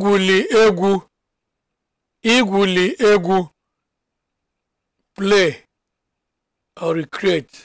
igwuli egwu igwuli egwu play or recreate